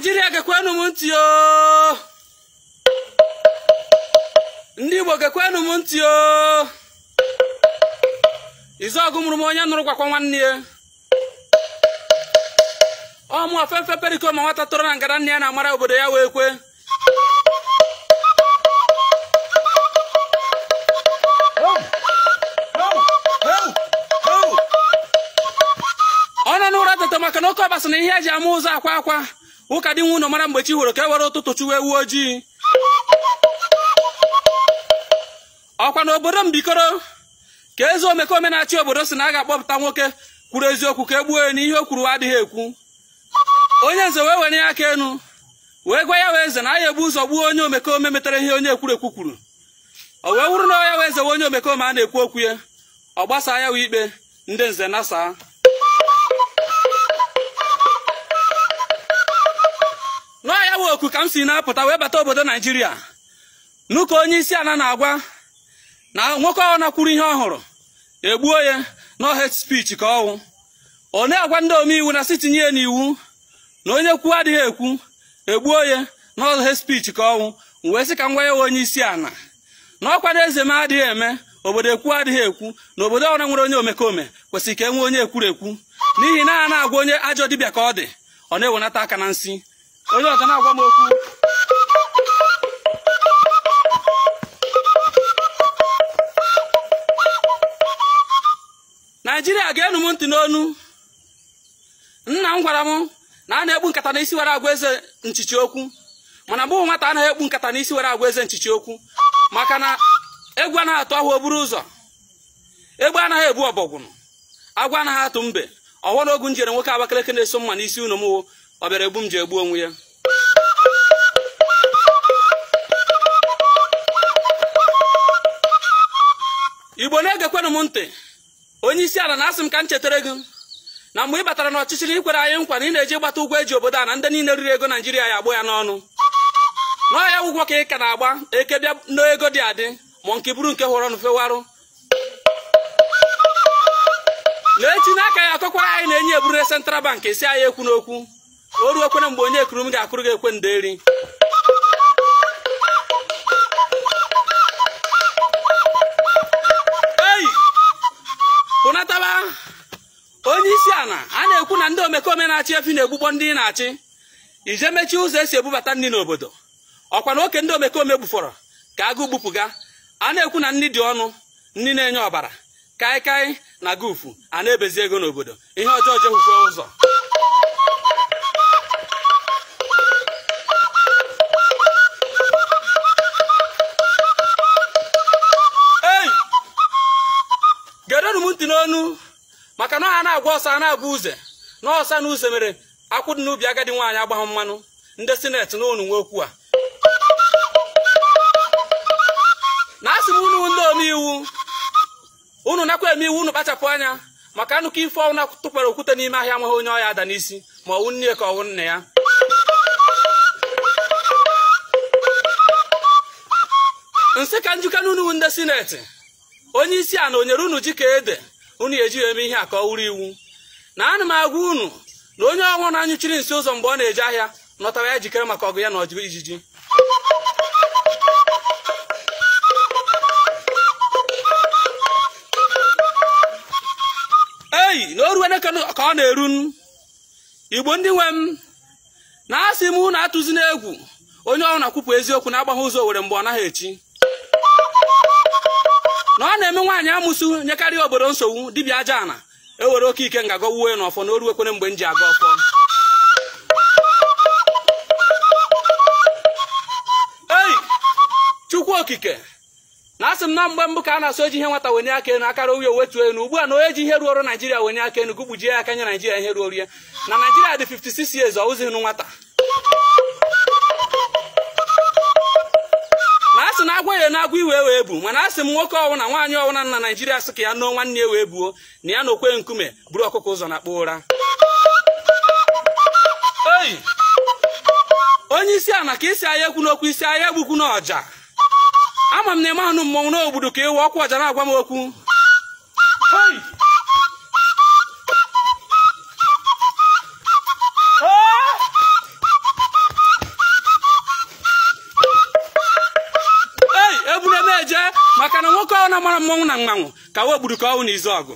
naijiria gekwenụ m ntị o ndị igbo gekwenụ m ntị o izuọgụ mụrụ m onye nụrụ gwakwa nwanne ya ọmụ ofefe periko ma nwata tọrọ na ngara nne ya na-amara obodo ya wee kwe ọ nọ n'ụra tata maka na oke ọbasa na ihe eji ama ụzọ akwa akwa ụka dị nwa mara mgbe chi hụrụ ka e were ụtụtụ chụwa ewu ojii ọkwa na obodo mbikoro ka eze omekome na-achị obodo si na a ga-akpọpụta nwoke kwuru eziokwu ka e gbuo ya n'ihe o kwuru adịghị ekwu onye nze wee were ya aka enu wee gwa ya wee eze na a ya ebu ụzọ gbuo onye omekome metara ihe onye ekwu kwuru o wee wụrụ na ya wee zewe onye omekome a na-ekwu okwu ya ọ gbasa ya wee ikpe ndị nze nasaa n'ọ ya bụ oku ka m si na-apụta wee bata obodo naijiria n'ụka onye isi ala na-agwa na nwoke ọ nakwuru ihe ọ hụrụ egbuo ya na het ka ọwụ one agwa ndị omeiwu na sitinye tinye ya n'iwu na onye kwuo adịghị ekwu egbuo ya na het spichi ka ọnwụ wee sị ka m ya onye isi ala na ọkwa na eze m adịghị eme obodo ekwu adịghị ekwu na obodo ọra nwere onye omekome kwesịrị ka e nwee onye ekwurekwu n'ihi na a na-agwa onye ajọ dibịa ka ọ dị ọ na-ewenata aka na nsị onye ọzọ na-agwa m okwu naijiria ga-enu m ntị n'onu nna m gwara m na a na-ekpu nkata n'isi were agwa eze nchichi okwu mana mbụ nwata na ekpu nkata n'isi were agwa eze nchichi okwu maka na egwu na atụ ahụ oburu ụzọ egbe anaghị ebu ọbọgwụ agwa anaghị atụ mbe ọghọ n'ogu njere nwoke Abakaliki na-eso mma n'isi unu ọ bịara egbu m ji egbu onwe ya igbo na-egekwenụ m ntị onye isi ala na-asị m ka m chetara gị na mgbe ị batara n'ọchịchị na ikwere anyị nkwa na ị na-eji ịgbata ụgwọ eji obodo a na ndị niile riri ego naijiria ya agbụ ya n'ọnụ n'ọhịa ụgwọ ka ị ka na-agba eke bịa n'ego dị adị ma nke buru nke hụrụ ọnụ fewarụ na echi n'aka ya akọkwara anyị na enye eburu central bank esi anyị ekwu n'okwu o ruo mgbe onye ekuru m ga-akụrụ gị ekwe nderi ei pụnataba onye isi ala a na-ekwu na ndị omekome na-achị efi na-egbukpọ ndị na-achị ije mechie ụzọ esi ebubata ndị n'obodo ọkwa na oke ndị omekome gbufọrọ ka agụ ga a na-ekwu na nni dị ọnụ nri na-enye ọbara kaịkaị na gufu a na-ebezi ego n'obodo ihe ọjọọ jehụfe ụzọ anụ maka na ọha na-agwa ọsọ a na-agwa uze na ọsa na uze mere akwụ dị n'ubi agadi nwaanyị agbahụ mmanụ ndị sineti na ụnụ nwokwu a na asị m unu ndị omeiwu unu nakwa eme iwu unu kpachapụ anya maka anụkọ ife ọnwụ tụkwara okwute n'ime ahịa nweghị onye ọya ada n'isi ma ọwụ nne ka ọwụ nna ya nsị ka njikọ n'unu ndị sineti onye isi a na onyere unu ji ka ede unu ejighị eme ihe a ka ọ wụrụ iwu na ana m agwa unu na onye ọnwụ na-anyụchiri nsị ụzọ mgbe ọ na eji ahịa nọtara ya jikere maka ọgụ ya na ọjụ ijiji eyi na oruwe ka ọ na-eru igbo ndị nwe m na-asị m unu atụzi n'egwu onye ọrụ na-akwụpụ eziokwu na-agbagha ụzọ were mgbe ọ naghị echi na-eme nwaanyị amụsụ nyekarị obodo nsogbu dibịa aja ana ewere oke ike nga gọwuo ya n'ọfọ na oruwekwere mgbe m aga ọfọ ei chukwu okike na asị m na mgbe mbụ ka a na-asụ eji ihe nwata wenye aka elu akara oyi owetuo elu ugbu a na onye ji ihe ruoro naijiria wenye aka enu gụgbujie ya aka nye naijiria ihe ruorie na naijiria dị 56 years ọ wụzighị nụ nwata na agwa iwe wee bu mana asị m nwoke ọwụna nwaanyị ọwụna na naijiria sị ka ya nụọ nwanne ya wee buo na ya na okwe nkume buru ọkụkọ ụzọ na-akpọ ụra oyi onye isi ala ka isi ahịa ekwu n'okwu isi ahịa egbukwu n'ọja ama m na eme anụ mmọnwụ n'obodo ka ewe ọkwa ọja na-agwa m okwu mmọnwụ na mmanwụ ka wee gburu ka ọnwụ na izu ọgụ